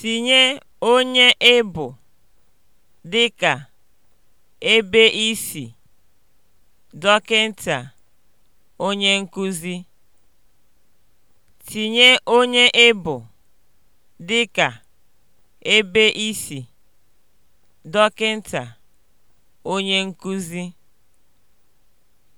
Tinye onye ị e bụ (dịka, ebe i si, onye nkuzi). E ebe i si, onye nkuzi).